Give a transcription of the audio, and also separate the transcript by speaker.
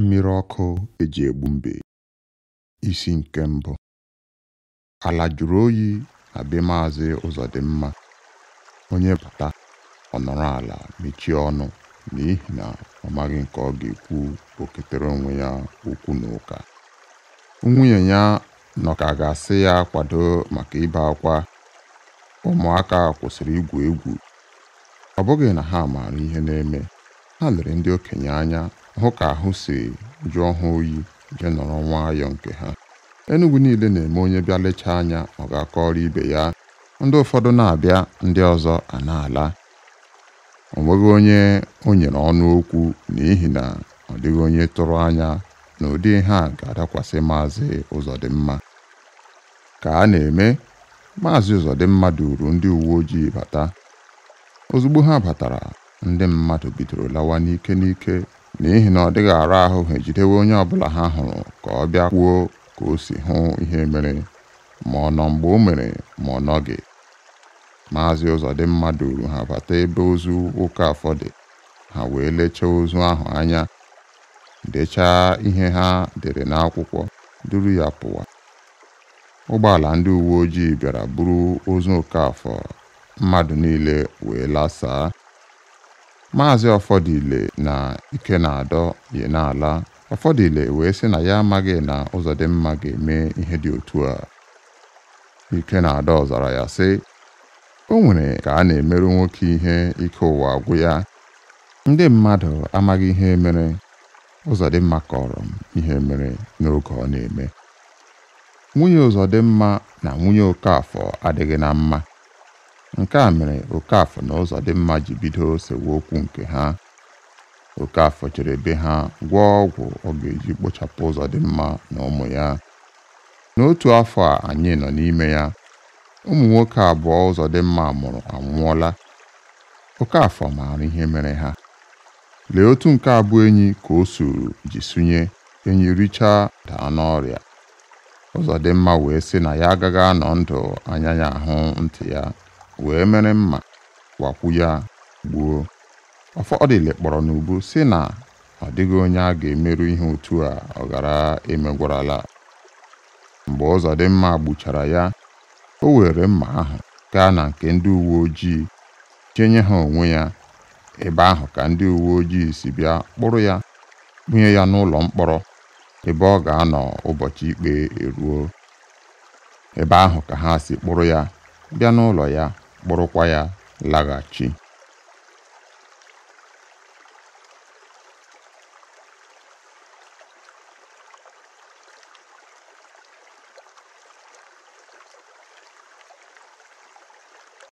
Speaker 1: mmiri ọkụ eji egbu mbe isi nke mbụ ala jụrụ oyi na be maazị ụzọdịmma onye bata ọnọrọ ala mechie ọnụ n'ihi na ọ maghị nke ọ ga-ekwu oketere onwe ya okwu na ụka nwunye ya nọ ka ga-asị ya kwado maka ibe akwa ụmụaka kwụsịrị igwu egwu ọ bụghị na ha maara ihe na-eme ha lere ndị okenye anya hụ ka ahụ si jụọ ha oyi je nọrọ nwayọọ nke ha Enugu niile na-eme onye bịa lechaa anya ọ ga-akọrọ ibe ya ndị ụfọdụ na-abịa ndị ọzọ a na-ala o nweghị onye o nyere ọnụ okwu n'ihi na ọ dịghị onye tụrụ anya na ụdị ihe a ga-adakwasị Maazị Ụzọdịmma ka a na-eme Maazị Ụzọdịmma duru ndị uwe ojii bata ozugbo ha batara ndị mmadụ bidoro lawa n'ike n'ike n'ihi na ọ dịghị ara ahụ ha ejidewe onye ọbụla ha hụrụ ka ọ bịa kwuo ka o si hụ ihe mere ma ọ nọ mgbe o mere ma ọ nọghị maazị Ụzọdịmma uru ha bata ebe ozu ụka afọ dị ha wee lechaa ozu ahụ anya dechaa ihe ha dere n'akwụkwọ duru ya pụwa ụgbọala ndị uwe ojii bịara buru ozu Okafọ mmadụ niile wee lasaa Maazị Ọfọdụile na adọ Ikenadọ n'ala, Ọfọdụile wee sị na ya amaghị na mma ga-eme ihe dị otu a. adọ zara ya sị, o nwere ka a na-emerụ nwoke ihe ike ụwa agwụ ya ndị mmadụ amaghị ihe mere Ụzọdịmma kọrọ m ihe mere n'oge ọ na-eme. Nwunye Ụzọdịmma na nwunye Okafọ adịghị na mma Nke a mere okafọ na mma ji bido sewaokwu nke ha. okafọ chere be ha gwọọ ọgwụ ọ ga-eji kpochapụ mma na ụmụ ya. N'otu afọ a anyị nọ n'ime ya, ụmụ nwoke abụọ mma mụrụ anwụọla. afọ maara ihe mere ha. Lee otu nke abụọ enyi ka o suru ji sunye enyi richaa daa n'ọrịa. mma wee sị na ya agaghị anọ ndụ anya ya ahụ ntị ya wee mere mma wakwu ya gbuo ọfọdịle kpọrọ n'ubu si na ọ dịghị onye a ga-emerụ ihe otu a ọ mgbe emegwarala mgbe mma gbuchara ya o were mma ahụ gaa na nke ndị uwe ojii chenye ha onwe ya ebe ahụ ka ndị uwe ojii si bịa kpụrụ ya bunye ya n'ụlọ mkpọrọ ebe ọ ga-anọ ụbọchị ikpe eruo ebe ahụ ka ha si kpụrụ ya bịa n'ụlọ ya kpụrụkwa ya laghachi.